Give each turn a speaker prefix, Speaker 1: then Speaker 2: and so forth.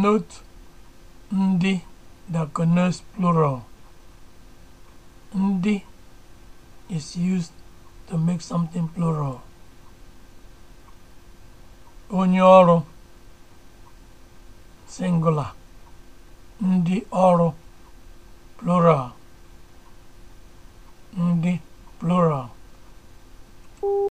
Speaker 1: Note ndị diaconus plural. Ndị is used to make something plural. Onye ọrụ singular. Ndị ọrụ plural. Ndị plural.